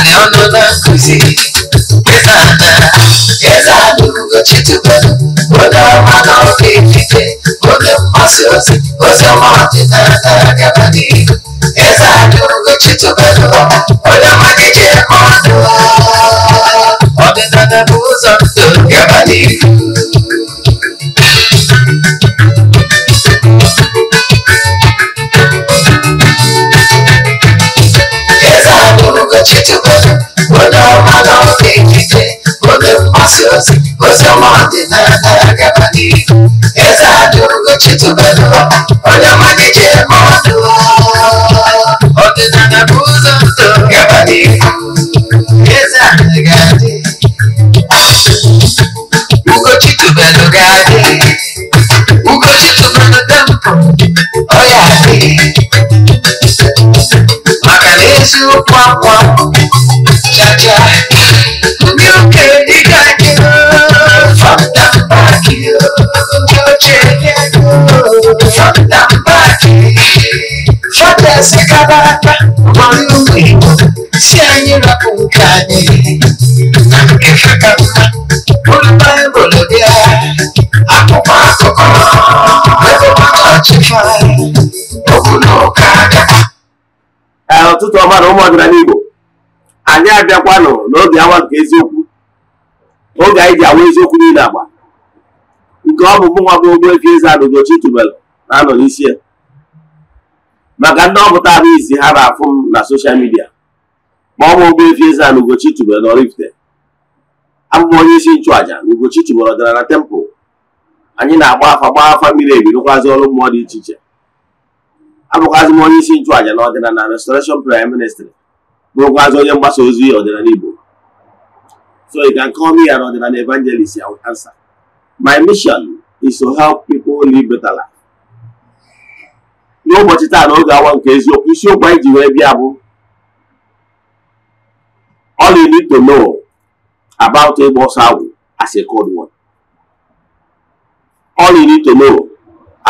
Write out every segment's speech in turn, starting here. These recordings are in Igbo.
mane ọnụ na-akụzi ịza nna eze adụgo chituba oge ọma na oge ikike oge mgbasa ozi ozi ọma ọdịnala gaba n'ihu eze adụgo chituba onye ọma na-eji eme ọdụ ọdịnala bụ ụzọ ndụ gaba n'ihu ansioso, você é uma desastre, acaba de Exato, nunca titubeou, olha uma de demônio O é abuso, acaba de Exato, gade Nunca titubeou, gade Nunca titubeou, tempo Olha aqui Macarejo, pão osikapa aka ọrụ ugbo igbo si anyị rapụ nke anyị na nke ha ka mma bụrụ baịbụl bịa akwụkwọ akụkọ ebụbachịfa okwu na ụka ụtụtụ ọma na ụmụ ọdịnala igbo anyị abịakwanụ n'oge awa nke eziokwu oge anyị ji awa eziokwu niile agba nke ọ bụ mụnwa bụ Ogbuefi Eze-Ana Ugochi tubelu na-anọ n'isi ya maka ndị ọpụtara isi ha na-afụ m na soshal midia ma ọ bụ Ogbuefi Eze-Ana Ugochi tubelu Oraifite abụm onye isi nchụàja na Ugochi tubelu dara na tempụ. anyị na-agba afa gba afa mmiri ebirokwazi ọrụ mmụọ dị iche iche abụkwazị m onye isi nchụàja na na restoration prime ministry bụrụkwazị onye mgbasa ozi ọdịna Igbo so you can call me ọdịna ọdịnala evangelist I will my mission is to help people live better life n'ụbọchị taa na oge awa nke eziokwu isiokwu anyị ji wee bịa bụ all you need to know about ịgba ọsọ agwụ as a cold one all you need to know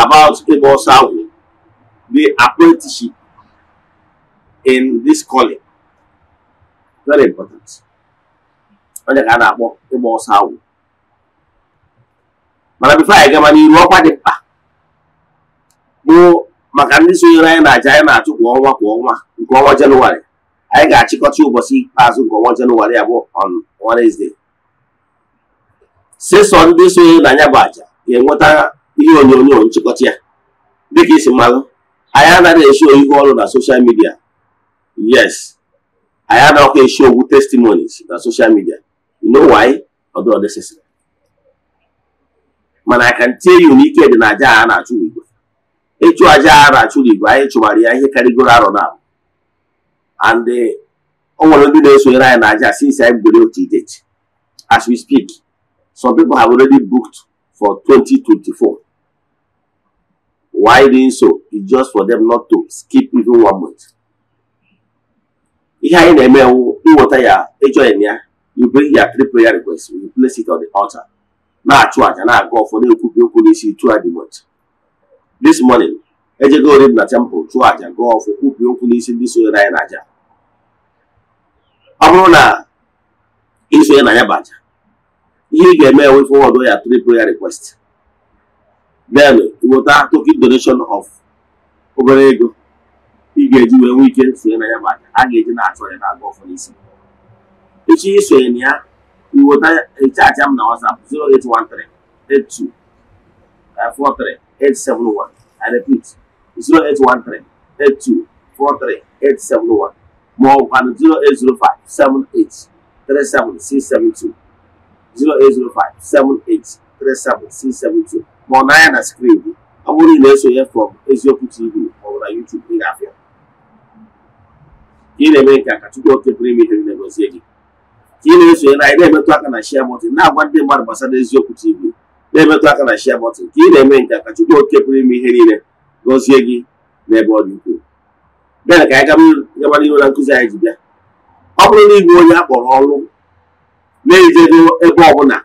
about ịgba ọsọ agwụ the apprenticeship in this calling very important onye ka a na-akpọ ịgba ọsọ agwụ mana bifo anyị gama n'iru ọkwa dị mkpa maka ndị sonyere anyị na aja anyị na-achụ kwa ọnwa kwa ọnwa nke ọnwa jenụwarị anyị ga-achịkọta ụbọchị ikpeazụ nke ọnwa jenụwarị abụ bụ on sesọ ndị sonyere na anya bụ aja ga-enweta ihe onyonyo nchịkọta ya dịka isi mmanụ anyị anaghị esi oyibo ọrụ na soshal midia yes anyị anaghị esi ogwu testimonies na soshal midia you know ọdụ mana I can tell you na ike dị na aja a na-achụ ugbu ịchụ aja ara na-achụ anyị chụbara ya ihe karịgoro arọ na and eh, o nwere ndị na-esonyere anyị na aja since anyị bidoro otu date as we speak some people have already booked for 2024 why doing so is just for them not to skip even one month ihe anyị na-eme ịnweta ya ịjoin ya you bring ya three prayer request you place it on the altar na-achụ aja na-aga ọfọ na okwu n'isi throughout the month This morning, ejego orim na temple chụọ àjà gụọ ọfụ kwupụ okwu n'isi ndị sonye na ya n'àjà ọ bụrụ na isonye na ya bụ àjà ihe ị ga-eme ewe fọwọdụ ya three prayer request then weta token donation of obere ego ị ga-eji wee nwee ike sonye na ya bụ àjà a ga-eji na-achọ ya na-aga ọfụ n'isi echi isonye na ya iweta eche àjà m na WhatsApp 0813 82 43 871. I repeat, 0813 More 0805 0805 Ma ọ na na screen ọ bụrụ na na from ma ọ YouTube na-eme nke a ka Chukwu oke pụrụ na-esonye na anyị aka na na-agwa ndị mmadụ gbasara Eziokwu TV. na-emetụ aka na shia bọtụn ka ị na-eme nke ka Chukwu oke pụrụ ime ihe niile gọzie gị n'ebe ọ dị ukwuu bịa ka anyị gaba n'ihu na nkụzi anyị ji bịa ọ bụrụ na ịbụ onye a kpọrọ ọrụ na-ejego ebe ọbụla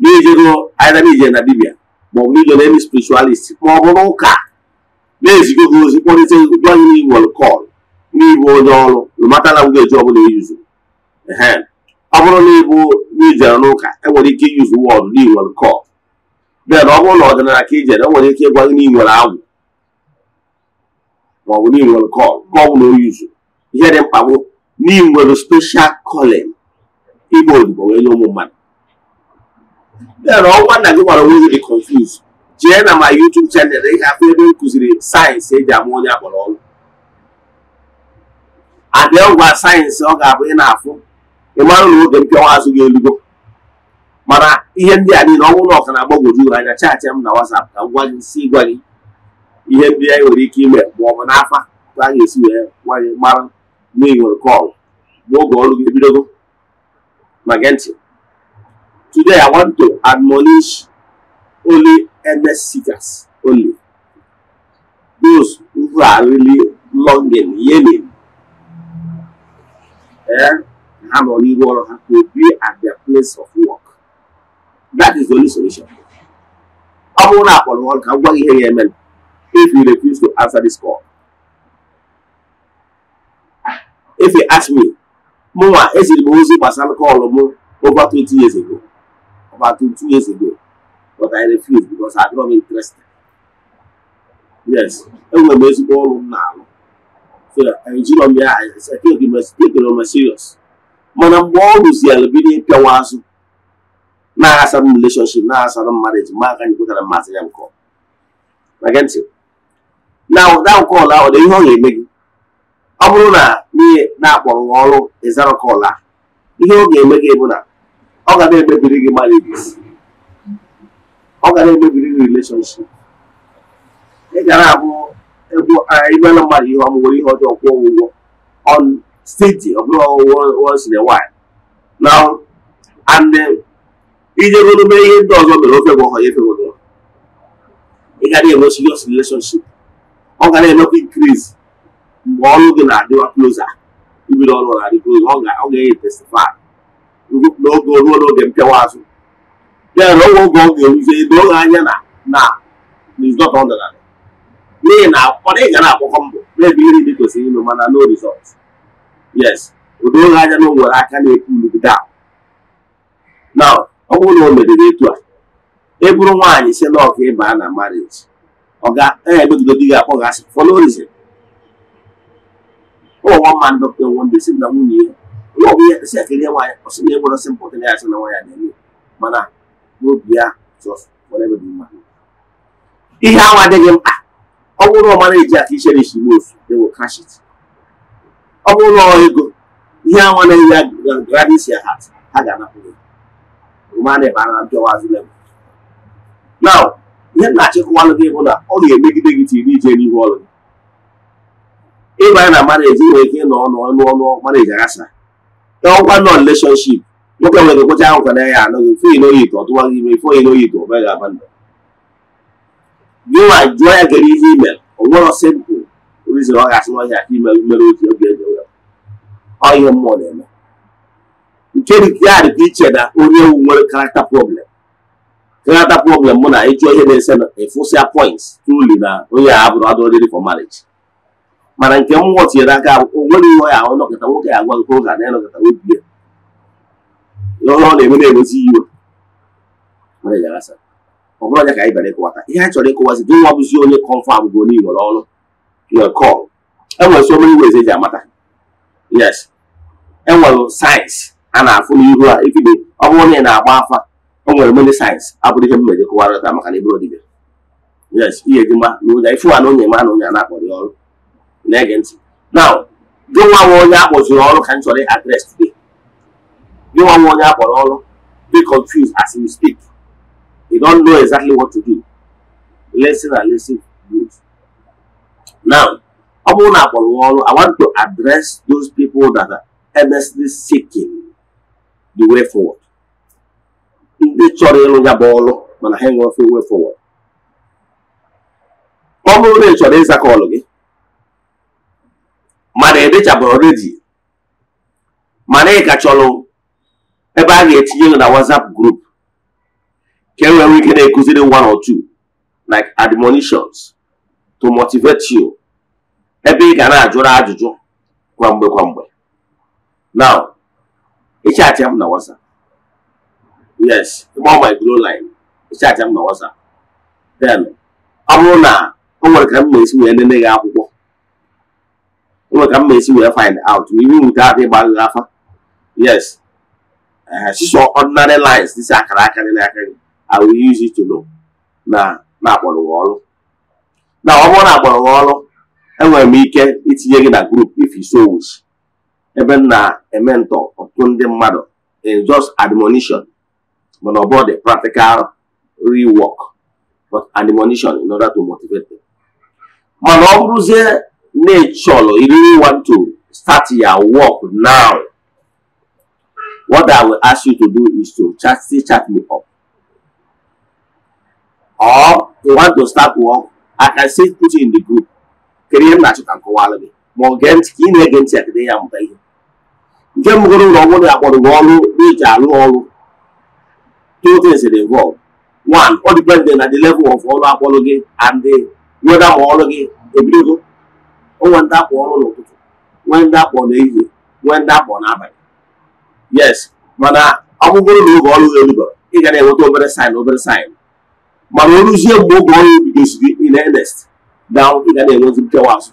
na-ejego anyịdara na dibia ma ọ bụ ije na emi spiritualist ma ọ bụ n'ụka na-ezigo gị ozi kpọrịta gwa gị n'iwel kọl n'ịbụ onye ọrụ matala ngwa eji ọbụla eyuzu ehe ọ bụrụ na ịbụ e na ijere n'ụka enwere ike iyuzu wọdụ n'inwe nke bịa na ọ bụrụ na ọdịnala ka ijere enwere ike ịgwa gị na inwere agwụ maọbụ n'inwere nke nke ọ bụla o yuzu ihe dị mkpa bụ n'inwere special calling ịgba odibo wee nye ụmụ mmadụ bịa na ọnwa nna gị gwara onwe gị dị confuse jee na ma YouTube chanel ị ga ebe m kụziri sayensị eji ama onye akpọrọ ọrụ adị ọgwa sayensị ọ ga-abụ ị na-afụ ị mara na oge mpịọnwa azụ ga elugo mana ihe ndị a niile ọnwụ na ọka na-agbagwoju ụra anya chaachị m na WhatsApp ka m gwa gị si gwa gị ihe ndị anyị nwere ike ime ma ọ bụ n'afa ka a ga-esi wee gwa gị mara na ị nwere kọlụ n'oge ọrụ gị ebidogo na gee ntị today I want to admonish only earnest seekers only those who are really longing yearning eh ha nọ n'ihu ọrụ ha to be at their place of work that is the only solution ọ bụrụ na akpọrọ ọrụ ka gwa gị ihe ya emere if you refuse to answer this call if you ask me mụnwa eziri m ozi gbasara kọlụ mụ over 20 years ago over 20 years ago but I refuse because I don't interested yes enwere m ezigbo ọrụ m na-alụ so na m ya m serious mana mgbe ọ rụziela bido ịpịawa azụ na-aghasara m releshọnship na-aghasara mmadụ ma aka nyekwetara mmasị ya nke na ụda ọla ọ dị ihe ọ ga-eme gị ọ bụrụ na n'ihe na-akpọrọ ọrụ ịzara kọl ọla, ihe ọ ga-eme gị bụ na ọ ga na-emebiri gị marriages ọ ga na-emebiri gị relationship ị gara abụ egwu ịbana mmadụ ihe ọmụwere ihe ọjọọ kwụọ ụgwọ ọnụ state of law once in a while now and ijegodobe ihe ndị ọzọ mere ofe bụ ọha efe obodo ị ga na-enwe serious relationship ọ ga na-emekwa increase mgbe ọrụ gị na-adịwa closer ibido ọrụ na-adị closer ọ ga-enye testify n'oge ruo n'oge mpịawa azụ ya na oge oge ọ ga-eruzi doo ha anya na na rizọt ọ dara n'ihi na ọ dịghị ga na-akpọkọ mbọ na-ebe iri dị kwesịrị ime mana no result yes odoo ha aja na nwere aka na-ekwu ulugide a na ọ bụrụ na o merere etu a ị bụrụ nwaanyị si na ọka ịba na marriage ọ eh, ga oh, ya emegido di gị akpọ gị asị fọlọ orize ụwa mma ndị ọkụ enwe ndị si na nwunye ihe onye ọbụla esi akịrị nwaanyị ọsị na enwere ọsị mpụta ya asị na nwaanyị na-eme mana n'obi ya jọs were ebe dị mma ihe ahụ adịghị mkpa ọ bụrụ ọmara aka ichere isi mofu ewe ọ bụrụ ụlọ ego ihe anwa na ya gradisia hat ha ga-anapụ na ihe na-achịkọwalụ gị bụ na ọ ga-emegide gị tiri ije n'ihu ọrụ gị na mareji nwere ike ịnọ ọnụ ọnụ ọnụ mareji aghasa ọkwa nọ releshọnship nwoke nwere kwecha ahụ kwara ya anọghị mfe ino yi ọ tụwa gị ime ife ino yi ọ bịa ga-aba ndụ gị nwa jụọ ya gere ihe ime o nwere ọsị bụ rizin ọ ga-asị nwa ya ime mere oji oge ego ọhịa mmụọ na-eme nke ya dị iche na onye ewu nwere karakta problem karakta problem mụ na ịchọ ihe na-ese na efosịa points tuli na onye a bụrụ adụ oriri for marriage mana nke m tinyere aka onwere ihe ya ọnọkọta nwoke ya agwa nke oge na ịnọkọta obi ya ọ na-eme na-emezi iwe ọ bụrụ anya ka anyị bịara ịkọwata ihe anyị chọrọ ịkọwazi gị nwa bụzi onye kọnfam bụ onye iwere ọrụ your call enwere so iwe eze eji amata yes enwere sayensị a na-afụ n'ihu a ikide ọ bụrụ na ị na-agba afa o nwere mene sayensị abụrụ ihe mmejọ kụwara maka na ịbụrụ dibịa yes ihe dị mma na ụja ifu ana onye ma na onye a na-akpọ ọrụ na-ege ntị now gị nwa nwa onye akpọziri ọrụ ka m chọrọ adres today gị nwa nwa onye akpọrọ ọrụ be confused as you speak you don't know exactly what to do listen and listen good now ọ bụrụ na akpọrọ ọrụ i want to address those people that are earnestly seeking the way forward ndị chọrọ ịlụ ya bụ ọlụ mana ha enwe ofe way forward ọ bụrụ na ị chọrọ ịza kọlụ gị mana ị edechabeghị redi mana ị ka chọrọ ebe a ga-etinye gị na WhatsApp group ka e nwere ike na-ekụziri one or two like admonitions to motivate you ebe ị ga na-ajụrụ ajụjụ kwa mgbe kwa mgbe Now, ịchaatị m na WhatsApp. Yes, ịgba my glow line. ịchaatị m na WhatsApp. Then, ọ bụrụ na o nwere ka m ma esi wee nene gị akwụkwọ. O nwere ka m ma esi wee find out. Iwu nwute adị ịgba gị afa. Yes. Sisọ eh, ordinary lines dịsị akara aka dị n'aka gị. I will use it to know na na-akpọrọ gị ọrụ. Na ọ bụrụ na akpọrọ gị ọrụ, enwere m ike itinye gị na group if you so wish. ebe m na-ementọ ọtụtụ ndị mmadụ in eh, just admonition mana ọ the practical rework but admonition in order to motivate them. mana ọ bụrụzie na ịchọrọ you really want to start your work now what I will ask you to do is to chat still chat me up or you want to start work I can still put you in the group kedu ihe m na-achọ ka m kọwara gị ma ọ gee ntị ka ị na-ege ntị a kedu ihe amụta ihe nke mbụgoro ụlọ ọbụrụ ya kpọrọ gị ọrụ arụ ọrụ two things dey involve one ọ dịpende na the level of ọrụ akpọrọ gị and weda ma ọrụ gị ebidogo onwe ndị akpọ ọrụ n'ụtụtụ nwee ndị akpọ n'ehihie nwee ndị akpọ n'abalị yes mana ọ bụgoro na oge ọrụ gị erugoro ị ga na-enweta obere sin obere saịn mana o ruzie mgbe oge ọrụ bidoziri in earnest na ị ga na-enwezi nkewa azụ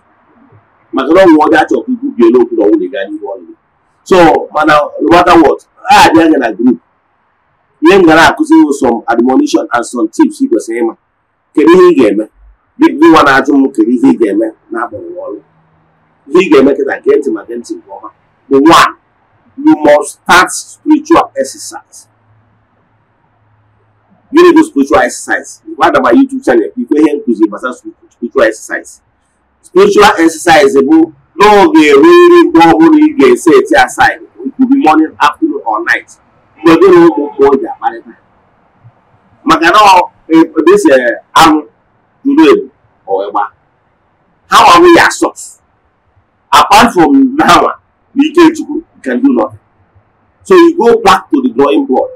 maka na ọnwụ ọ dị achọ ka ikwu bie n'okwu na ọnwụ na ị n'ihu ọrụ gị So, man, no matter what, I didn't gonna agree. Yen gonna accuse you some admonition and some tips you go say, man. Kiri he game, big do one atom kiri he game, na bo wall. He game get against him against him, woman. The one, you must start spiritual exercise. You need to spiritual exercise. What about YouTube channel? People here inclusive, but spiritual exercise. Spiritual exercise is eh, about No, n'oge ruo ọhụrụ say ga side. eti aside be morning afternoon or night mgbe gị na ụmụ ụmụoge akparịta maka na dịse anụ ndụ ebu ọgba ha nwarụ ya sọs apart from nawa na ike chukwu can do nothing so you go back to the drawing board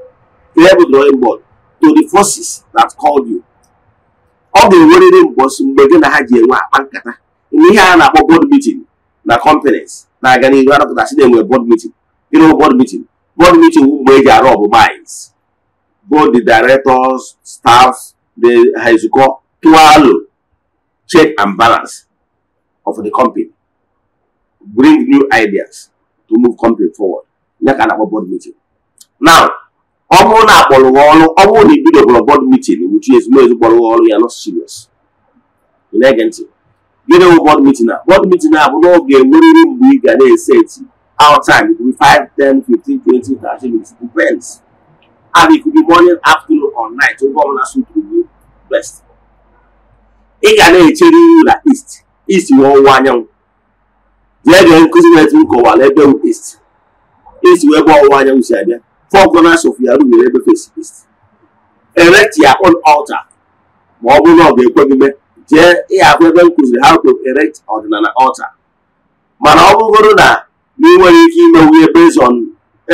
to every drawing board to the forces that called you ọ ga-enwerịrị mbọsị mgbe gị na ha ji enwe akpa nkata ihe a na-akpọ board meeting na companies na-aga n'ihu anọpụtasị na-enwe board meeting ịrụ board meeting board meeting mgbe eji arụ ọbụ minds both the directors staffs the ha ezukọ tụalụ check and balance of the company bring new ideas to move company forward ya ka a na-akpọ board meeting now ọ bụrụ na akpọrọ ọrụ ọ bụrụ na ibidoboro board meeting wuchi ezigbo ezigbo ọrụ ya nọ serious You na-ege ntị gịnị bụ bọd mitin a bọd mitin not bụ n'oge nweriri mgbe ị ga na-eseti outside it could be 5 10 15 20 30 minutes depends and it could be morning afternoon or night oge ọbụla to gị best ị ga na-echere ihu na east east bụ ọwụwa anyanwụ jee gee nkụzi na-eti nkọwala ebe bụ east east bụ ebe ọwụwa anyanwụ si abịa four corners of your room, ya rubere to face east erect your own altar ma ọ bụrụ na ọ ga jee ịhakwa ebe m kụziri how to erect ọdịnala altar mana ọ bụgoro na na nwere ike ime wuye on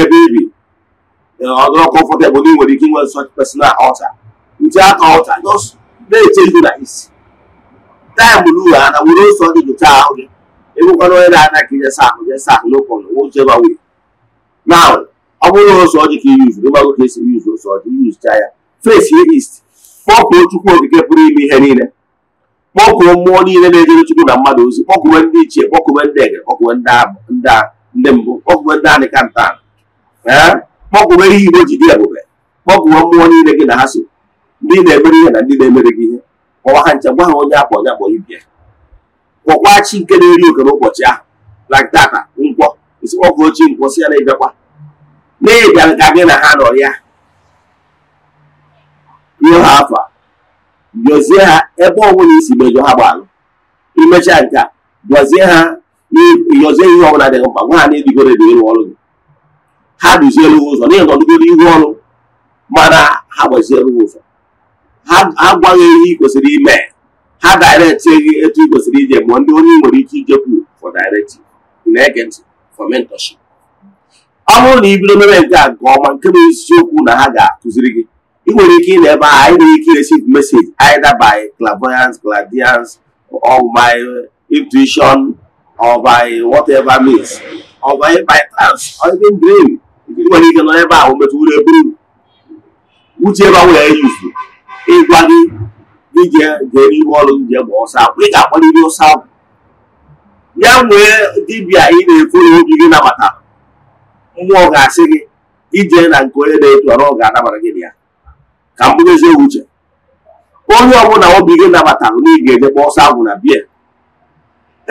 ebe ibi eh, ọdụrụ comfortable na ị nwere ike inwe such personal altar nche aka altar just na-eche na isi taịm na ana were ose dị jụcha ahụ gị ịbụkwana onye na-ana ka ijesa ahụ jesa ahụ n'ụkọnụ wụcheba wee na ọ bụrụ na ose ọjị ka iyuzu ịgbago ka esi yuzu ose ọjị yuzucha ya face ist east chukwu okike pụrụ ime ihe niile kpọkuo mmụọ niile na-ejere Chukwu na mmadụ ozi kpọkuwe ndị ichie kpọkuwe ndị ege kpọkuwe ndị mbụ kpọkuwe ndị anịka nta ee kpọkuwe ihe igbo ji dị ebube kpọkuwe mmụọ niile gị na ha so ndị na-emere ihe na ndị na-emere gị ihe kpọwa ha nche gwa ha onye akpọ onye akpọ ibia kpọkwa chi nke na-eri oke n'ụbọchị ahụ na data nkwọ isi kpọkuo chi nkwọ si ya na ịbịakwa na ịbịa ka gị na ha nọ ya nye ha afọ jọzie ha ebe ọbụla isi mejọ ha gbalụ imechaa nke a gọzie ha yọzie ihe ọbụla dịghị mkpa nwa ha na-edigoro edigoro ọrụ gị ha duzielu ụzọ n'ihi nọdụgoro ihu ọrụ mana ha gbazielu ụzọ ha gwaghị ihe ị kwesịrị ime ha daireti gị etu ị kwesịrị ije ma ndị onye nwere ike ijekwu for directive na-ege ntị for mentorship ọ bụrụ na ị bido mebe nke a nke ọma nke bụ eziokwu na ha ga-akụziri gị ị nwere ike ịna-ebe a anyị nwere ike receive message either by clairvoyance clairvoyance or by intuition or by whatever means or by by trance or even dream ị nwere ike nọ ebe ahụ metụrụ eburu uche ebe ahụ ya eyuzu ịgwa gị ije jere ime ọrụ nje ma ọsọ akwụ ị ga-akpọrịrị ọsọ akwụ ya nwee dibịa ị na-efu n'obi gị nabata mmụọ ga-asị gị ije na nke onye na-etu ọrụ ọ ga-anabara gị ya ka m bụrụ eziokwu uche onye ọbụla obi gị nabatara na ị ga-eje gba ọsọ agwụ na biya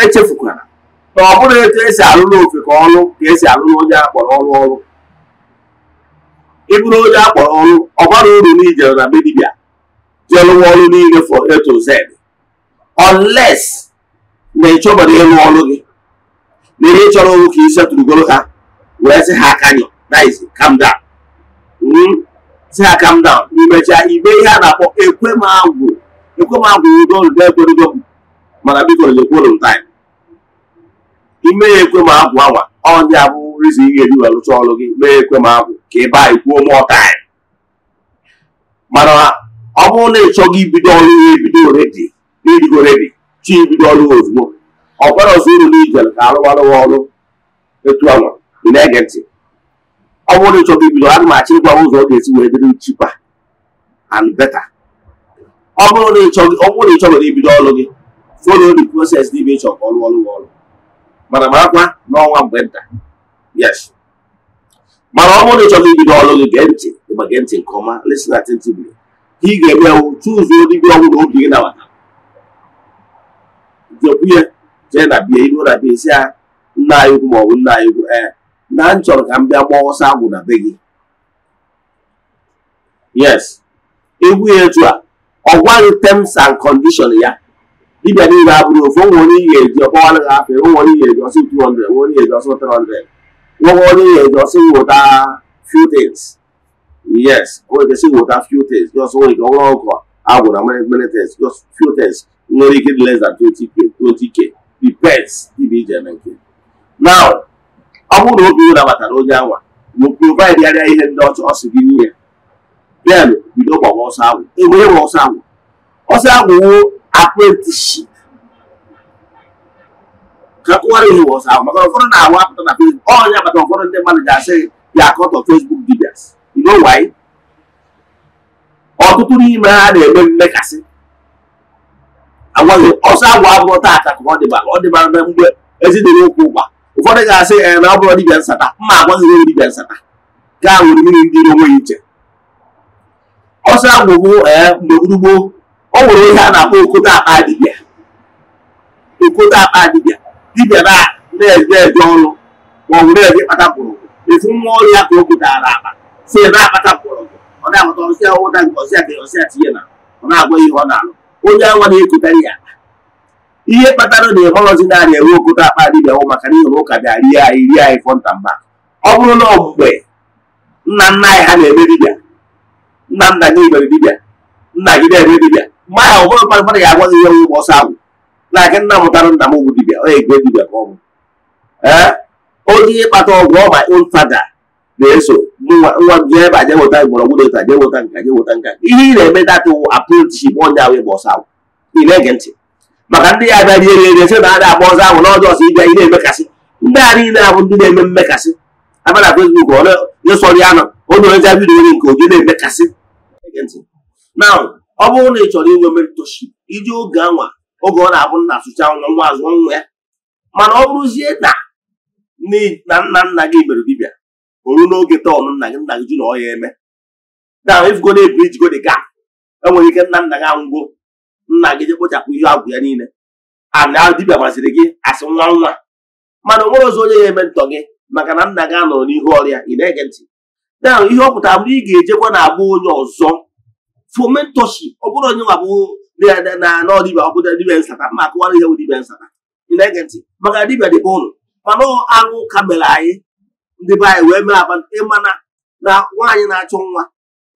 echefukwara na ọ bụrụ etu esi arụ n'ofe ka ọrụ ka esi alụrụ onye akpọrọ ọrụ ọrụ ịbụrụ onye akpọrọ ọrụ ọ bara uru na ijere na be dibịa jee ọrụ niile for A to ọles unless na ịchọbara ịrụ ọrụ gị na ihe chọrọ ọrụ ka i setụrụgoro ha wee sị ha aka nyọ nice calm si ha ah, calm down imecha ibe ihe a na-akpọ ekwe m ekwemagwụ ekwemagwụ m mana biko nyekwuru m taịm ime ya agwụ awa ọ ndị abụ rizi ihe eji wee rụcha ọrụ gị mee agwụ ka ị baa ikwuo mụọ taịm mana ọ bụrụ na ị chọghị ibido ọrụ ihe ebido oredi na ibido oredi chi ibido ọrụ ozugbo ọ kwere ọzọ uru na ijere ka arụwarụwa ọrụ etu anwa ị na-ege ntị ọ bụrụ na ibido m achọ ịgwa ụzọ ọ ga-esi wee dịrị cheaper and beta. ọ bụrụ na ịchọgoro ibido ọrụ gị follow the process n'ime ịchọ ka ọrụ ọrụ ọrụ mana makwa n'ọnwa mgbe nta yes mana ọ bụrụ na ibido ọrụ gị gee ntị ịgba gee ntị nke ọma ka ị ga-eme ewu tụzuo dibịa ọgwụ gị nawata jekwuye jee na bie iru na bie si ha nna anyị ọ bụ nna anyị ukwu ee eh, na m chọrọ ka m bịa gbaa ọsọ agwụ na be gị yes egwu ya etu a ọ gwaghị terms and condition ya dibịa niile abụrụ ofu onwe onye ihe eji ọgbawara gị afọ onwe onye ihe eji ọsọ 200 nwe onye ihe eji ọsọ 300 nwe onye ihe eji ọsọ nweta few things yes onwe kwesị nweta few things just onwe ike ọhụrụ ọkụ agwụra many things just few things nwere ike dị less than 20k 20k depends dibịa ije eme nke now ọ bụrụ na oge ụra onye anwa ma provaịd ihe ndị ọcha ọ sị gị nye ya bịa bido gbawa ọsọ agwụ enwere m ọsọ agwụ ọsọ agwụ wuo apprenticeship ka kụwara ihe ọsọ agwụ maka ụfọdụ na-awa apụta na Facebook ọnya bata ụfọdụ ndị mmadụ ga-asị ya akọtọ Facebook dibias ido waị ọtụtụ n'ime ha na-eme mmekasị agwaghị ọsọ agwụ abụrụ taata ka ọ dịbara ọ dịbara mgbe ezinụlọ okwu ụkwa ụfọdụ ga-asị ee na ọ bụrụ dibịa nsata mma agwaghị onye dibịa nsata gaa nwere mmiri ndị onweghị iche ọsọ agwụgwụ ee mgbe gburugburu ọ nwere ihe a na-akpọ okote akpa dibịa okote akpa dibịa dibịa na-eje eje ọrụ ma ọ bụ na-eje kpata mkpụrụ efu nwa ọrụ ya ka o kotara akpa si na-akpata mkpụrụ ọ na-akpata ọsịa ụda nke ọsịa ka ọsịa tinye na ọ na-agwa ihe ọ na-alụ onye anwa na-ekotarị ya ihe kpatara na ịhọrọzi naanị enwe okoto akpa dịbịahụ maka na ịhụrụ ụka dị rie anyị rie anyị fọnta mba ọ bụrụ na ọmgbe nna nna anyị ha na-eme dibịa nna nna gị mere dibia nna gị na-eme dibịa mgbe ahụ ụfọdụ mmadụ mmadụ ga-agwa gị ihe nwụ ọsọ agwụ na aka nna mụtara nna m bụ dibịa ọ egwe dibịa ka ọ bụ onye ihe kpata ọgwụ ọma ịfada na-eso nwa gị ebe aje weta mgbọrọgwụ na-eta je weta nka je weta nka ihe ị na-eme datụ bụ onye ahụ ịgba ọsọ agwụ ị na-ege ntị maka ndị ya abịa rie ere sị na a na-agba ọzọ ahụ n'ọdụ ọzọ ịbịa ị na-emekasị ndị a niile abụ ndị na-eme mmekasị abịa na fesbuk ịsọrọ ya nọ onye onye ja vidiyo nke oge na-emekasị na ọ bụrụ na ị chọrọ inwe mentorship iji oge anwa oge ọ na-abụ nna asụcha nwa nwa azụ nwa ya mana ọ bụrụzie na na nna nna gị mere dibịa oru n'oge tọọnụ nna gị nna gị ji na ọ ya eme na ifgo na-ebu ijigo dị enwere ike nna nna gị anwụgo nna gị je kpochapụ ihe agwụ ya niile ana dibịa masịrị gị asị nwa nwa mana o nwere ọzọ onye ya eme ntọ gị maka na nna gị anọrọ n'ihu ọrịa ị na-ege ntị na ihe ọ pụtara bụrụ ị ga-ejekwa na agba onye ọzọ fomentoshi ọ bụrụ onye nwa bụ na anọ dibịa nsata ma akụwara ihe bụ dibịa nsata ị na-ege ntị maka dibịa dịbe ụlọ mana aṅụ ka mere anyị ndị be anyị wee mee aba ịmana na nwaanyị na-achọ nwa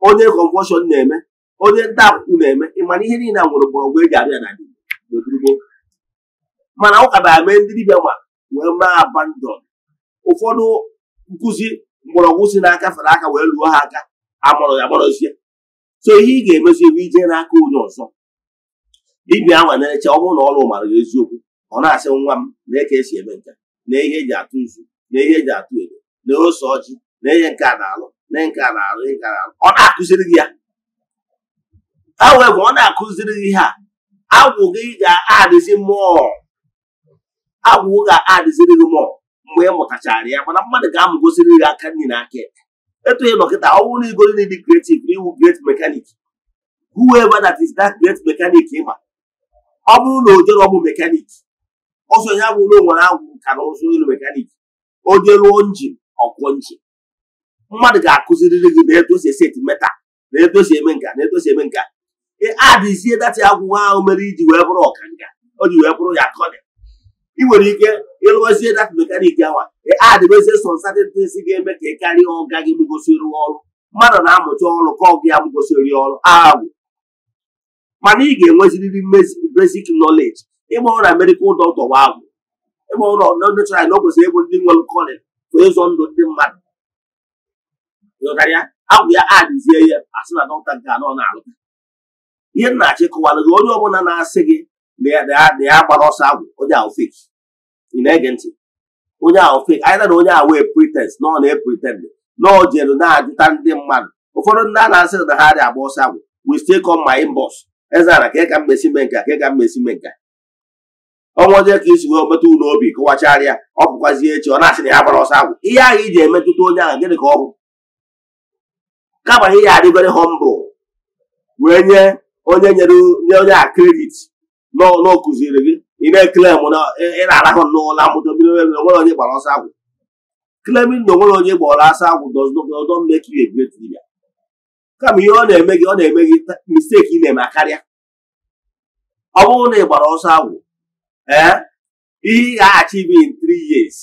onye kọnvọshọn na-eme onye nta akwụkwọ na-eme ịmana ihe niile a nwere mgbọrọgwụ eji abịa na gboo mana ụka na-eme ndị dibịa ma wee maa abandon ụfọdụ nkụzi mgbọrọgwụ si n'aka fere aka wee lụọ ha aka agbọrọ ya agbarọzie so ihe ị ga-emezi ebe ije n'aka onye ọzọ dibịa ahụ na-eche ọ na ọrụ mara eziokwu ọ na-asị nwa m na eke esi eme nka na ihe eji atụ izu na ihe eji atụ edo na ose ọjị na ihe nke a na-alụ na nke a na-alụ nke a na-alụ ọ na-akụziri gị ya however ọ na-akụziri ihe a agwụgị gị ga-adịzi mmụọ agwụ ga-adịziri gị mmụọ mgbe ị mụtachara ya mana mmadụ ga-amụgosiri gị aka nri na aka ekpe etu ị nọkịta ọ bụrụ na igoro dị creative na iwu mekanik mechanic whoever that is that gret mekanik ịma ọ bụrụ na ọ bụ mekanik ọsọ ya bụrụ na onwere agwụ ka na ụzụ ilu mekanik o njin ọkụ njin mmadụ ga-akụziriri gị na etu esi eseti na etu eme nka na etu eme nka adịzie dati agwụgwọ ahụ mere iji wee bụrụ ọkanga o ji wee bụrụ ya kọdị ị nwere ike ịlụzie data mekaniki awa adịbezie sọ satịtịs ga-eme ka ị karịa ọga gị mụgosiri ọrụ mmadụ na-amụcha ọrụ ka ọgụ ya mụgosiri ọrụ ahụ mana ị ga-enweziriri mbezik nọleji ịgba ọrụ na medikal dọkịta wa agwụ ịgba ọrụ na nechara na o kwesịrị ịbụ ndị nwere kọlị bụ ịzọ ndụ ndị mmadụ agwụ ya adịzie ya asị na dọkịta ga anọ na-alụ ihe nna achịkọwalụ gị onye ọbụla na-asị gị na ya gbara ọsọ agwụ onye ahụ fake ị na-ege ntị onye ahụ fake anyị na onye ahụ wee pretend na ọ na-epretend na ọ jelu na-ajụta ndị mmadụ ụfọdụ ndị a na-asị na ha dị agba ọsọ agwụ we still come my inbox ka ị ka mmesi mee nka ka ị ka mmesi mee nka ọnwa onye ka isi wee metụ ụlọ obi kụwacharịa ọ bụkwazie echi ọ na-asị na ya gbara ọsọ agwụ ihe ahụ iji emetụta onye ahụ gịnị ka ọ bụ kama ihe ya adịgoro hombụl wee nye onye nyere onye a kredit n'ụlọ kụziri gị ị na-ekele na ị na-arahụ n'ụlọ amụta onwere onye gbara ọsọ agwụ claiming na onwere onye gbara ọsọ agwụ doesn't make you kama ihe ọ na-eme gị ọ na-eme gị misteki ị na-eme karịa ọ bụrụ na ị gbara ọsọ agwụ ee eh, ihe ị ga-achieve in tri years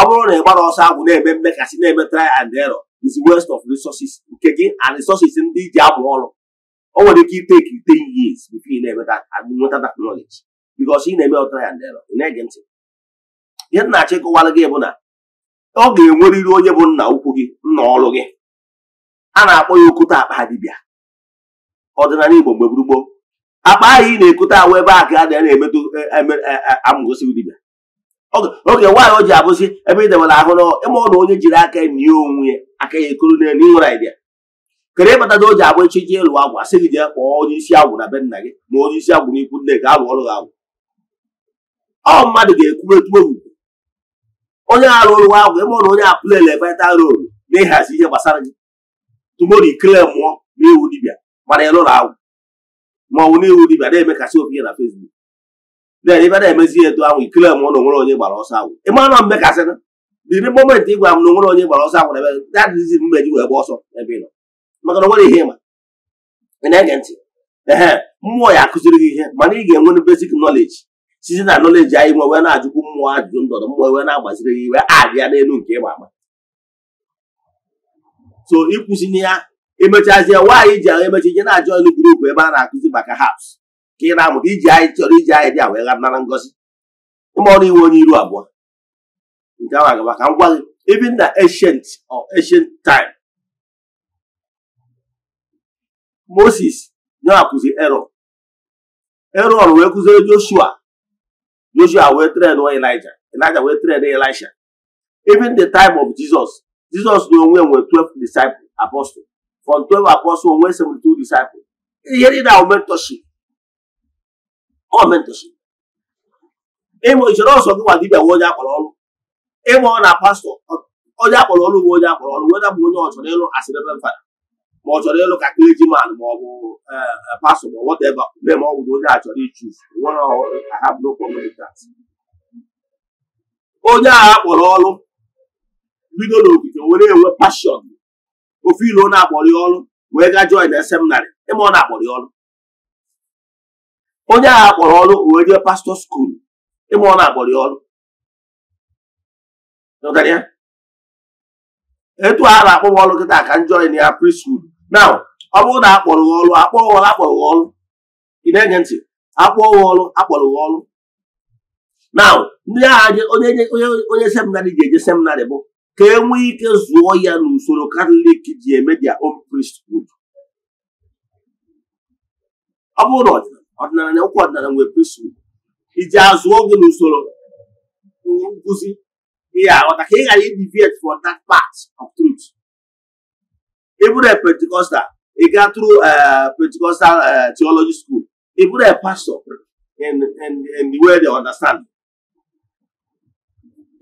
ọ bụrụ na ị gbara ọsọ agwụ na-eme mmekasị na-eme tri and error is west of resources nke gị and resources ndị ji amụ ọrụ o nwere ike iteki ten years before ị na-enweta nweta that knowledge because ị na-eme ọtara ya ndị ị na-ege ntị ihe nna achịkọwara gị bụ na ọ ga enweriri onye bụ nna ukwu gị nna ọrụ gị a na-akpọ ya okote akpa dibịa ọdịnala Igbo mgbe gburugburu akpa ahụ ị na-ekote ahụ ebe a ka a na-emetụ e, e, e, amụgosi dibịa oge nwaanyị o ji abụzi ebe ị debere ahụ n'ụlọ ịma ọ na onye jiri aka nye onwe ya aka ya ekoro n'elu ịnwere idea kere ịbataga o ji agba echichi ịlụ agwụ asị gị jee kpọọ onye isi agwụ na be nna gị na onye isi agwụ n'ikwu nne gị alụ ọrụ gị agwụ ọ mmadụ ga-ekwuru etu ogugo onye arụ ọrụ agwụ ịmụ na onye apụlele vita rol na ịhazi ihe gbasara gị tumori ikele mmụọ n'iwu dibịa mana ịlụrụ agwụ maọnwụ n'iwu dibịa na-emekasị obi na fesbuk na-ebe na-emezi etu ahụ ikele mmụọ na onwere onye gbara ọsọ agwụ ịma na mmekasịna dịrị moment ịgwa m na onwere onye gbara ọsọ agwụ na ebe dadịzi mgbe ji wee gba ọsọ ebe ị nọ maka na nwere ihe ịma ị na-ege ntị ehe mmụọ ya akụziri gị ihe mana ị ga-enwe basic knowledge site na knowledge anyị nwe wee na-ajụkwu mmụọ ajụjụ ndọrọ mmụọ wee na-agbaziri gị iwe abịa n'elu nke ịma ama so ịkwụsịnye ya emechazie nwaanyị ji ahụ emecha ije na-ajụ elu gurupu ebe a na-akụzi maka haps ka ị na-amụta iji anyị chọrọ iji anyị dị a wee nara ngozi ịma ọrụ iwe onye iru abụọ nke ahụ agaba ka m gwa gị ibi na ancient or ancient time moses nyewapụzi erọn erọn wee kụziere joshua joshua wee tren elija elija wee tren elisha even the time of jesus jesus na onwe nwere 12 disciples apostles from 12 apostles onwe 72 disciples ihe niile ahụ mentorship ọ ịmụ ichere ọsọ gị nwa dibia onye akpọrọ ọrụ ịmụ ọ na pastọ onye akpọrọ ọrụ bụ onye akpọrọ ọrụ nwere bụ onye ọ ịlụ asịrị ebe ma ọ chọrọ ịlụ ka clergyman ma ọ bụ e, e, pastor ma whatever mee ma ọ bụrụ onye a chọrọ ichus onye a kpọrọ ọrụ bido n'ogige were enwe pashọn ofe ilu ọ na-akpọrọ ọrụ wee gaa join na seminarị ịma ọ na-akpọrọ ọrụ onye agha kpọrọ ọrụ wee jee pastọ skuul ịma ọ na-akpọrọ ọrụ etu a na-akpọ m ọrụ kịta ka m join ya priskul now ọ bụrụ na akpọrọ ọrụ akpọrọ gị ọrụ akpọrọ gị ọrụ ị na ntị akpọrọ ọrụ akpọrọ ọrụ now ndị agha onye onye seminarị ga-eje seminarị bụ ka e nwee ike zụọ ya n'usoro katọlik ji eme their own priesthood ọ bụrụ na ọdịnala na okwu ọdịnala nwere priesthood iji azụọ gị n'usoro nkụzi ị ga-aghọta ka ị ghara idiviate from that part of truth ị bụrụ pentikọstal ị gaa tụrụ uh, pentikọstal uh, theology school ị bụrụ pastọ in in the way they understand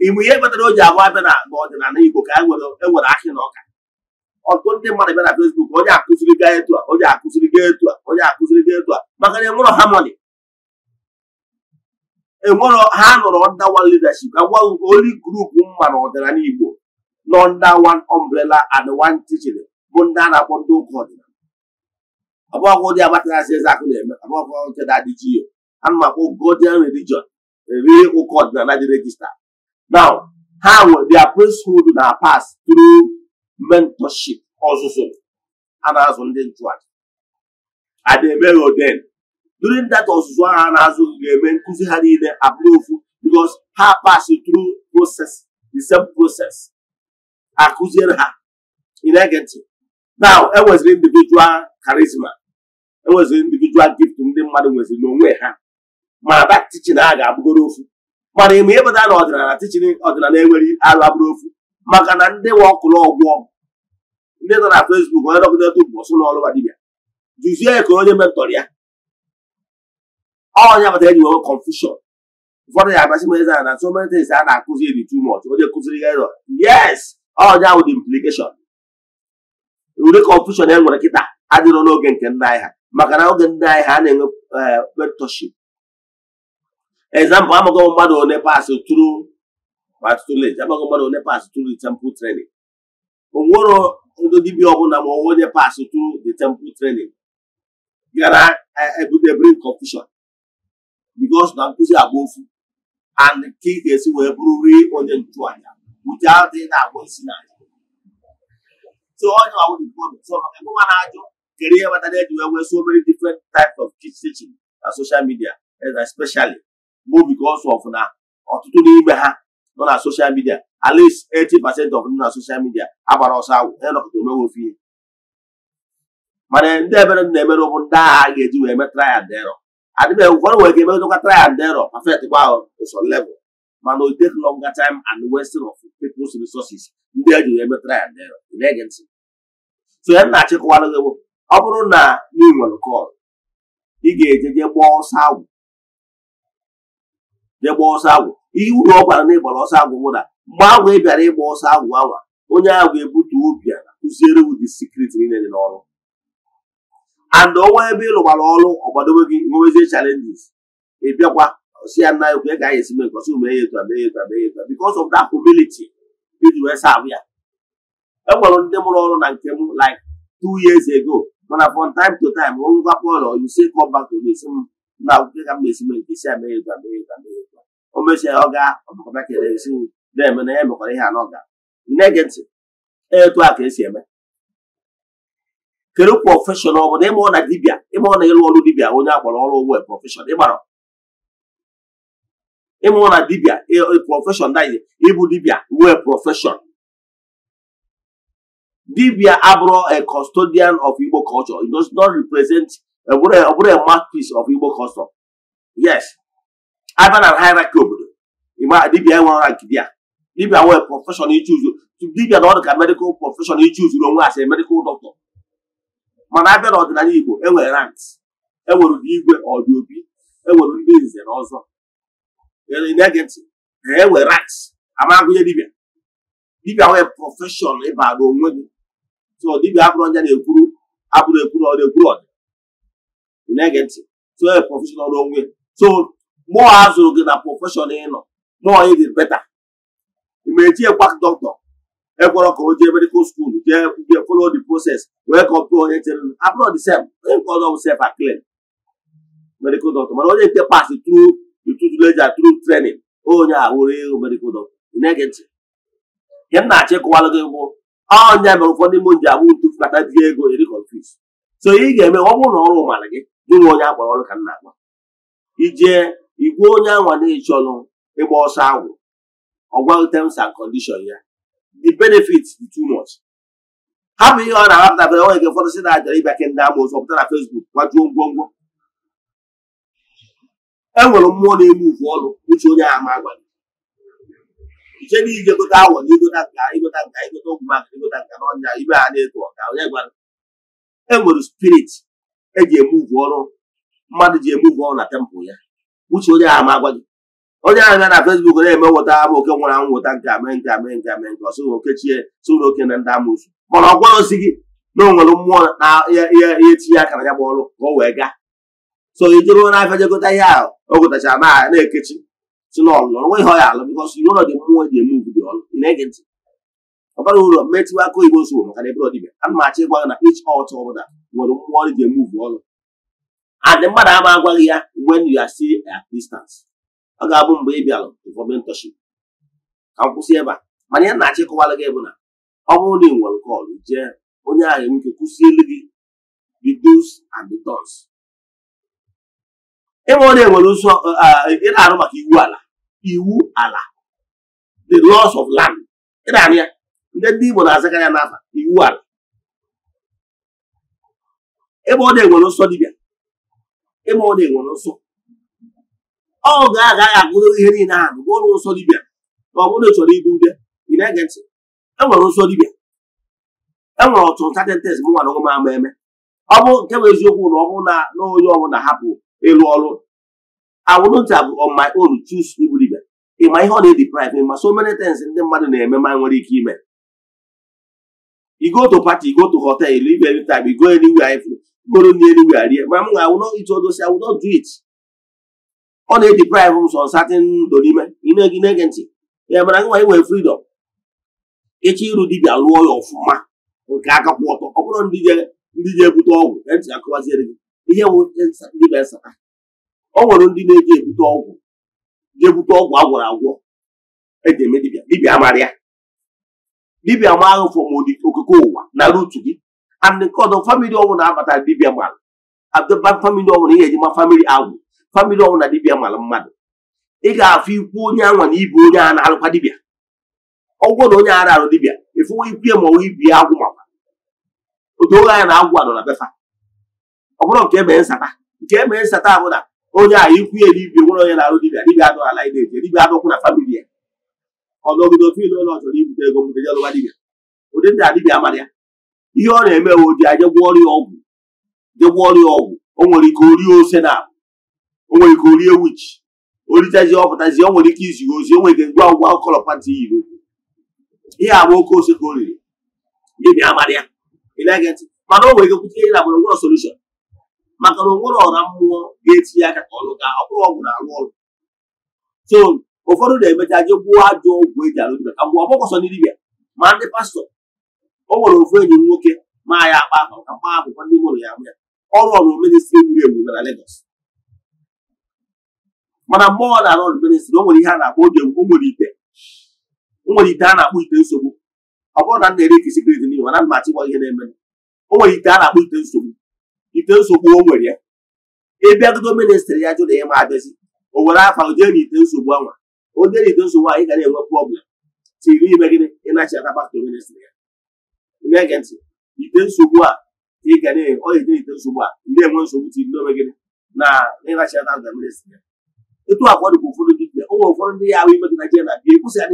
ịbụ ihe kpatara o ji agwa abịa na ọdịnala Igbo ka e ewere ahị na ọka ọtụtụ ndị mmadụ bịa na Facebook onye akụziri gaa etu a onye akụziri gaa etu a onye akụziri gaa etu a maka na enwero harmony enwero ha nọrọ under one leadership agwa only group mma na ọdịnala Igbo nọ under one umbrella and one teaching bụ ndị e a na-akpọ ndị ụka ọdịnala ọgbakọ dị agbataghazi eze akụ na-eme agbakọ nke na-adịji ya ana m godian religion ri ọdịnala dị regista a na-azụ ndị eme ahụ a na-azụ ga-eme nkụzi ha niile ha pass through process the same akụziere ha ege ntị now enweziri individual charisma enweziri individual gift ndị mmadụ nweziri n'onwe ha ma that tichin a ga-abụgoro ofu mana ịmụ ịpụta na ọdịnala teaching ọdịnala enweghị arụ abụrụ ofu maka na ndị nwe ọkụrụ ọgwụọ ndị nọ na fesbuk onye dọkịta bụ ọsụ n'ọrụ ma dibịa jụzie ka onye mentọr ya ọnya bata eji nwewe confusion ụfọdụ ya abasị m eze na so many things a na-akụzi dị too much onye kụziri ya yes ọnya bụ the ụdị kọnfushọn e nwere kịta adịrọ n'oge nke ndị anyị ha maka na oge ndị anyị ha na-enwe eh, mentorship example amaghị mmadụ one pass through patulage amaghị mmadụ one pass through the temple training onwero ndị dibịa ọbụla ma onwe onye pass through the temple training gara ebute eh, e bring confusion because na nkụzi agba ofu and ka ị ga-esi wee bụrụ rie onye nchụaja without ị na-agba isi n'anya So all you are with ọzọ So everyone has your career, but then you have so many different types of teaching na social media, and especially more because of now, or ọtụtụ n'ime ha nọ na social media at least 80% of na social media agbara ọsọ awụ ya nọkọta omewe ihe mana ndị ebere na-emere ndị agha ga-eji wee mee try and error adịbe ụfọdụ nwere ike emedụkwa try and error perfect kwa ụsọ mana o take longer time and wasting of people's resources ndị eji wee mee try and error tụnyere na nna achịkọwara gị bụ ọ bụrụ na ị nwere kọl ị ga-eje jee gbaa ọsọ agwụ jee gbaa ọsọ agwụ ihe uru ọgwara gwara na ịgbara ọsọ agwụ bụ na mgbe agwụ ị bịara ịgba ọsọ agwụ anwa onye agwụ ebute obi a kụziere wu dị niile dị n'ọrụ and ọnwa ebe ịlụgbara ọrụ ọgbadobe gị nwewezie chalenjis ị bịakwa si ya nna ekwe ka anyị esi mee nke ọsọ mee etu a mee ya etu a mee ya etu a because of that humility iji wee saa ya enwere ndị mụrụ ọrụ na nke m like two years ago mana from time to time ngwa pọlọ ise kọmbat omesi m na akwụkwọ ka m na-esi mee nke isi amere ego amere ego amere ego o ọ gaa ọmakọta kere esi m na-eme na ya mekwara ihe anọ ga na-ege ntị e, etu a ka esi eme kedu prọfeshọn ọ bụla ịmụọ na dibịa ịmụọ na ịlụ ọrụ dibia onye akwara ọrụ ugbo prọfeshọn ịgbara ịmụọ na dibịa prọfeshọn daghị ịbụ dibia wee prọfeshọn Dibia Abro, a custodian of Igbo culture, it does not represent a, a, a mouthpiece of Igbo culture. Yes. Ivan and hierarchy obodo. Ima Dibia enwe rank dia. Dibia were profession he choose. Dibia na ọdụ medical profession he choose onwe as a medical doctor. Mana abịa n'ọdịnala Igbo enwere ranks. Enwere ụdị igwe ọdị obi. Enwere ndị nze na ọzọ. Na-ege ntị. Enwere ranks. Ama agụnye dibia dibịa profession, prọfeshọn ịbara onwe gị so dibịa abụrụ ọnya na-ekwuru abụrụ ekwuru ọ na-ekwuru ọdị ị na-ege ntị so e prọfeshọn ọrụ onwe so mụọ a zụrụ gị na prọfeshọn ị nọ mụọ ị dị beta ma eji ekwa dọkịta ekwọrọ ka o jee medikal skuul jee jee folo the process wee kọpụọ onye chere abụrụ the sef onye nke ọzọ bụ sef aklen medikal dọkịta mana onye nke pas tru tutu leja tru trenin onye a were medikal medical doctor. na-ege ntị nke m na-achọ gị bụ ọnya mere ụfọdụ ime ji abụ ntu fụlata di ego iri e konfis so ị ga-eme ọ bụrụ na ọrụ mara gị jụ onye agbara ọrụ ka m na-agba ije igwe onye anwa na e ịgba ọsọ agwụ ọgwa terms and condition ya the benefits dị too much hapụ ihe ọ na-ahapụtabere onye nke ụfọdụ si na ajara ịbịa ke ndị ama ụzọ pụta na fesbuk gwajuo ngwongwo e nwere mmụọ na-egbu ụfụ ọrụ uche onye ahụ agwa gị iche na ije gote awọ na igote nka igote nka igote ụmụ maka igote nka na ọnya ibe ha na-eto ọka onye gwara e nwere spirit eji emuvu ọrụ mmadụ ji emuvu ọrụ na tempụl ya uche onye ahụ ma agwa gị onye ahụ ya na fesbuk na-eme nweta ama oke nwụrụ anwụ nweta nke ame nke ame nke ame nke ọsụ oke chie sụrụ oke na ndị amụsụ mana ọ gwara osi gị na onwere mmụọ na ihe etinye aka na ya bụ ọrụ ka o wee gaa so i jụrụ na afịa jegota ihe ahụ o gotachara na na-ekechi si na ọlụ ọrụ nweghị ọya alụ bikọs iwu ụlọ dị mmụọ dị eme ugwu dị ọlụ n'ege na-ege ntị ọ bara ụlọ mmetụ aka oyibo zụrụ maka na ebe ọdịbịa ana m achọ ịgwa gị na ich ọt ọbụla nwere mmụọ ọrụ dị eme ugwu ọlụ adị mmadụ ama agwaghị ya when you are still at ọ ga-abụ mgbe ị bịalụ for mentorship ka m kwụsị ebe a mana ya na-achọ ịkọwara gị bụ na ọ bụrụ na ị nwere kọlụ jee onye ahụ enweke kwụsị elu gị the dos ebe ọ na-enwere ị na-arụ maka iwu ala iwu ala the laws of land ị na-arụ ya ndị ndị Igbo na-azakarị ya n'afa iwu ala ebe ọ na nsọ dibịa ebe ọ na nsọ ọ ga-agaghị agụrụ ihe niile ahụ bụ nsọ dibịa ma ọ bụrụ chọrọ ibu ube na-ege ntị enwere nsọ dibịa enwere ọtụtụ tatentes m nwara ọgụma ama eme ọ bụ nke bụ eziokwu na ọ bụrụ na onye ọbụla hapụ ịlụ ọrụ I bụ have on my own choose igbu ịma ihe ọ na-ediprive ịma so many things ndị mmadụ na-eme ma nwere ike ime igoto to party igo to hotel live anytime igo anywhere if goro ni anywhere rie ma m ga awụ not ito awụ not do it ọ na-ediprive m sọ ndụ n'ime ị na ntị ya mara nwa nwee freedom ịchọ ịrụ dibia lụọ ya ọfụma nke aka kwụ ọtọ ọ bụrụ ndị ebute ọgwụ ntị akụwaziere gị ihe dịba nsata ọ nwere ndị na-eji ebute ọgwụ ga-ebute ọgwụ a gwọrọ agwọ eji eme dibịa dibịa mara dibịa ma ahụ fọmodi ụwa na rutu gị and nke ọdọ famili ọnwụ na-abata dibịa mara adọba famili ọnwụ ihe eji ma famili agwụ famili ọnwụ na dibịa mara mmadụ ị ga-afụ ikwu onye anwa na ibu onye a na-alụkwa dibịa ọgwụ na onye ara arụ dibịa efuwe ikwu ya ma ọwụ ibi ya agwụ makwa otu oge anya na agwụ anọ na befa ọ bụrụ nke emee nsata nke emee nsata bụ na onye a ikwu ya dibia nwere onye na-arụ dibia dibia adụghị ala ide eje dibia adụkwụ na famili ya ọnọgide ofe ile ụlọ chọrọ ibute ego mbute jelụwa dibia ụdị ndị adibia mara ya ihe ọ na-eme we oji aje gwọ ọrịa ọgwụ je ọrịa ọgwụ o nwere ike orie ose na o nwere ike orie wichi oritazi ọpụtazi o nwere ike izi ozi o nwere ike ngwa ngwa kọlọ pati yiri ihe agba oke ose ka o riri dibia amara ya mana o nwere ike kwute ihe na gburugburu solushon maka na onwere ọra mmụọ ga-etinye aka ka ọ ka ọ bụrụ ọgwụ na-arụ ọrụ so ụfọdụ na-emecha je gbuo ajọ ọgwụ eji arụ dibịa ka mgbe sọ ndị dibịa ma ndị pastọ o nwere ofu enyi nwoke ma ya akpa akpa ka mkpa akwụkwọ ndị mụrụ ya bụ ya ọrụ ọrụ ministri wuru e ewu na Lagos mana mgbe ọ na-arụ ọrụ ministri o nwere ihe a na-akpọ oge o nwere ite o nwere ite a na-akpọ ite nsogbu ọ bụrụ na m na-ere ikesi kredit n'ihu na ihe na-eme o nwere ite a na-akpọ ite nsogbu ite nsogbu o nwere ya ịbịagodo ministrị ya jụrụ ma abịazi o nwere afa jee na ite nsogbu anwa onye na ite nsogbu anyị ga na-enwe prọblem tiri ime gịnị ịnachi ministrị ya na ntị ite nsogbu a ị ga na ọ na-eje ite nsogbu a ndị enwe nsogbu tiri n'ome gịnị na ịnachi aka baktọ ministrị ya etu ụfọdụ dibia ụmụ ụfọdụ ndị ya ahụ ime gị na adị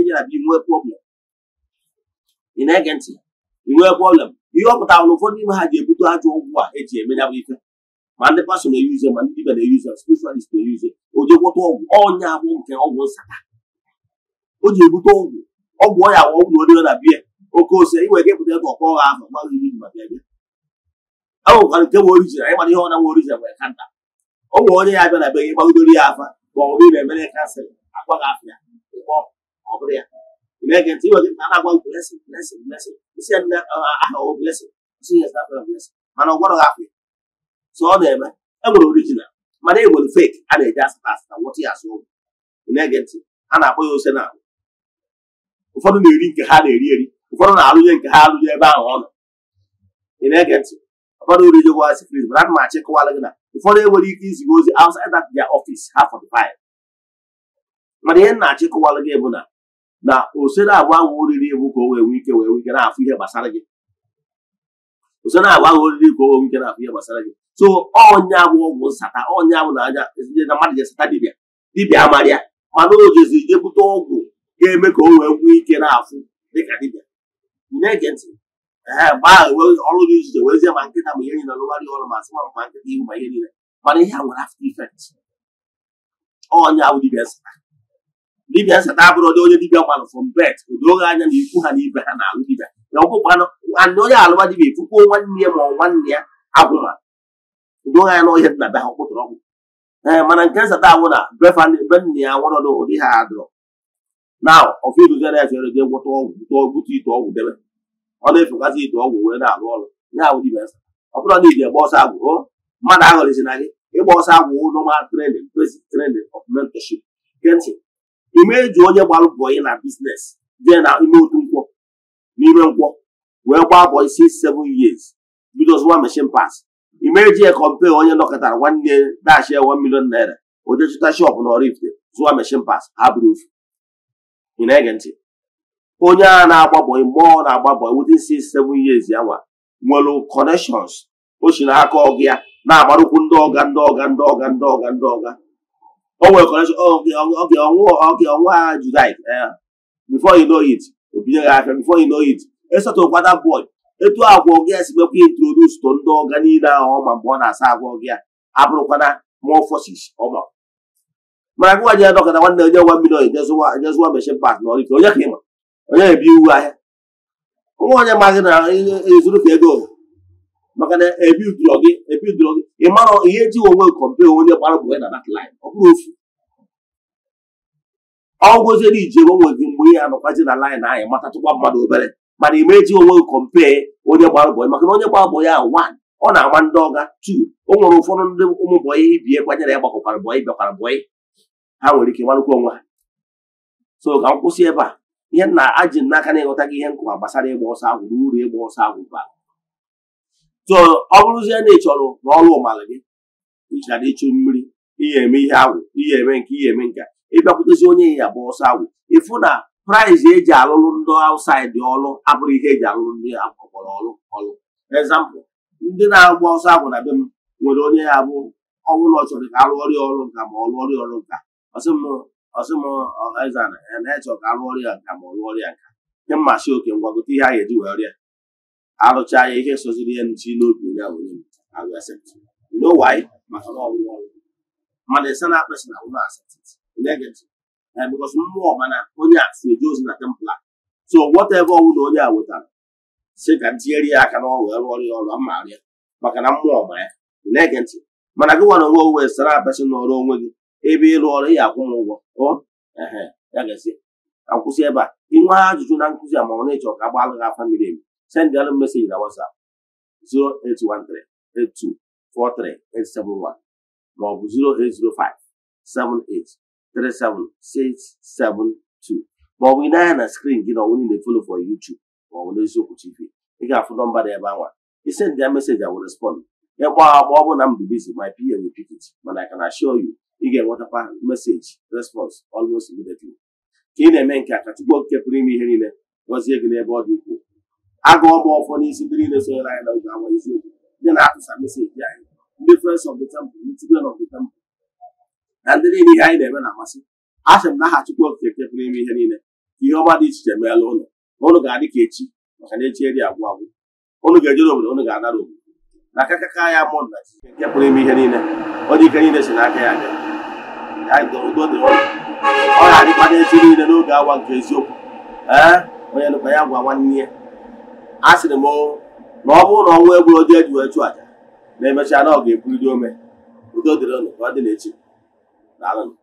jena bia nwee prọblem ị na prọblem ihe ọ pụtara na ụfọdụ ime ha ji ebute ajọ ọgwụ a eji eme ya bụ ife ma ndị pasọ na-eyuze ma ndị dibia na-eyuze spiritualist na-eyuze o jekwọta ọgwụ ọnya abụ nke ọgwụ nsata o ji ebute ọgwụ ọgwụ ọnya awụ ọgwụ na na biya oke ose inwe ike ịpụta ebe ọkọ ọha ahụ gbaghị ihe ma bịa bịa a nwekwara nke bụ orijin anyị mara ihe ọ na nwe orijin nwere kanta o nwere onye ya abịa na be gị gbagidoro ya afa ma ọ bụrụ na emere kansịl akwa gị afọ ya ọ bụrụ ya Megan, he was I want blessing, blessing, blessing. He said, uh, I have a blessing. She has not a blessing. Man, what are you? So, na I will original. My name will fake, and they just pass what he has sold. Megan, and I will say Ụfọdụ na-eri nke ha na-eri eri, ụfọdụ na-alụnye nke ha alụnye ebe ahụ ọnụ. Ị na-ege ntị, ụfọdụ orijigwa sikrit, mana ana m achịkọwala gị na ụfọdụ enwere ike iziga ozi outside that their office ha 45. Mana ihe gị bụ na na osere na-agba ahụ oriri bụ ka o wee nwee ike wee nwee ike na-afụ ihe gbasara gị ose na-agba ahụ oriri ka o wee nwee ike na-afụ ihe gbasara gị so ọnya bụ ọgwụ nsata ọnya bụ na anya na mmadụ ga-esata dibịa dibịa amara ya mana o jezi jebute ọgwụ ga-eme ka o wee nwee ike na-afụ dịka dibịa na-ege ntị gbaa ọrụ gị ijije werezie ma nkịta ma ihe niile lụgharị ọrụ ma sị ma nkịta ihu ma ihe niile mana ihe a nwere after effect ọnya bụ dibịa nsata dibịa nseta abụrụdị onye dibịa gbalụ fọm bet odoghị anya na ikwu ha na ha na-alụ dibịa na onye alụwa dibịa efukwuo nwanne ya ma ọ nwanne ya agwụma odoghị anya na ọhịa dị na be ha kwụtara ọgwụ mana nke nsata awụ na be nna ya nwụrọdụ ụdị ha adụrọ na ya ọgwụ ọgwụ debe na ite ọgwụ wee na-alụ ọrụ ya awụ dibịa nseta ọ bụrụ na ọsọ agwụ mmadụ na gị ịgba ọsọ agwụ of imeju onye gbalụ bọyị na biznes jee na ime otu nkwọ n'ime nkwọ wee gbaa bọyị six seven years bido zụwa mechin pas imeji ya kọmpe onye nọkọtara nwanne dashi ya one million naira oje shop na Oraifite zụwa mechin pas ha bụrụ ofu ege ntị onye a na-agba bọyị na-agba bọyị within six seven years ya nwa nwere connections o si n'aka ọgụ ya na-agbarụkwu ndị ọga ndị ọga ndị ọga ndị ọga ndị ọga o nwere kọnekshọn oge ọnwa ha julaị bifo inoit it gị afịa bifo inoit esatụkwa that boy etu agwa gị si mekwa introdus to ndị ọga niile ahụ ọma mgbe ọ na-asa agwa gị abụrụkwana mụọ forces ọma mana gụwa ya adọkọta nwanne onye nwa mmiri oyi nyezụwa meshin pak na ọrịka onye ka ịma onye ebi iwu ahịa nwa onye maghị na ezuru ka ego maka na ebidoro gị ebidoro gị ị marọ ihe ji onwe kọmpe onye gbara bụ na dat line ọ bụrụ ofu ọ gwụziere iji onwe gị mgbe ihe anọkwazi na line anyị matatụkwa mmadụ obere mana ị meji onwe gị kọmpe onye gbara bụ maka na onye gbara bụ ya one ọ na-ama ndị ọga tu o nwere ụfọdụ ndị ụmụ bọyị ibie kwanyere ya gbakwara bọyị bịakwara bọyị ha nwere ike marụkwa onwe ha so ka m kwụsị ebe a ihe nna aji n'aka na ịghọta gị ihe nkụwa gbasara ịgba ọsọ agwụ na uru ịgba ọsọ agwụ bara so ọ bụrụzie na ị chọrọ n'ọrụ ụmalị gị ịchara ịchụ mmiri ihe eme ihe agwụ ihe eme nke ihe eme nke ịbịakwutezi onye ya bụ ọsọ agwụ ịfụ na praịs eji alụrụ ndị aụsaidị ọrụ abụrụ ihe eji alụrụ ndị ọkpọrọ ọrụ ọrụ ezampụ ndị na-agba ọsọ agwụ na be m nwere onye ya bụ ọnwụ na ọchọrọ ka arụ ọrịa ọrụ nka ma ọ rụọ ọrịa ọrụ nka ọsịmọzana na-echọ ka arụ nka ma ọ rụọ nka nke mmasị oke ngwagote ihe a ga-eji arụcha ya ihe soziri ya nchi n'obi onye ahụ onye maka na ọgwụgwọ mmadụ ịsa na akpesị na ụlọ negative eh, mmụọ mana onye a ozi na templa so whatever ọnwụ na onye a wetara si ka ntinyere ya aka na ọrụ rụ ọrụ ya ọrụ maka na mmụọ ma ya negative mana gị nwere onwe onwe sara apesị na ọrụ onwe gị ebe ịrụ ọrụ ya akwụ m ụgwọ ebe a ajụjụ nkụzi a ma ọ ka miri emi sendịalụ mesej na wasap 08138243871 maọbụ ọ bụ 08057837672 ma ọ ị na na skrin gị na ọnwụ niile folo for YouTube maọbụ ọ bụ n'eziokwu TV ị ga-afụ nọmba dị ebe anwa isendịa meseji awụ respond ya kpọọ akpọ ọ bụ na m dị bizi my pa will pick it mana I can assure you ị ga-enwetakwa meseji response almost immediately ka ị na-eme nke a ka Chukwu okike pụrụ ime ihe niile gọzie gị n'ebe ọ dị ukwuu agụọ m ọfọ n'isi ndị niile sonyere anyị na oge awa ndị na-atụsa meseji anyị ndị friends of the temple ndị children of the temple na ndị niile ihe anyị na-eme na-amasị a m na aha Chukwu Okike kepụrụ ime ihe niile ihe ọma dị iche iche meela ụlọ na ụlụ ga-adị ka echi maka na echi dị agwụ agwụ ụnụ ga-ejere obodo ụnụ ga-anara obodo na aka kaka ya mụ na Chineke pụrụ ime ihe niile ọ dị ike niile si n'aka ya bịa ọ ga-adịkwa n'echi niile n'oge awa nke eziokwu ee onye nụkwa ya gwa nwanne ya a sịrị m na ọ bụrụ na ọnwụ egburu dị e eji wee chụ aja na emechaa na ọ ga-ebuliri ome udo dịrị unu ka ọ dị n'echi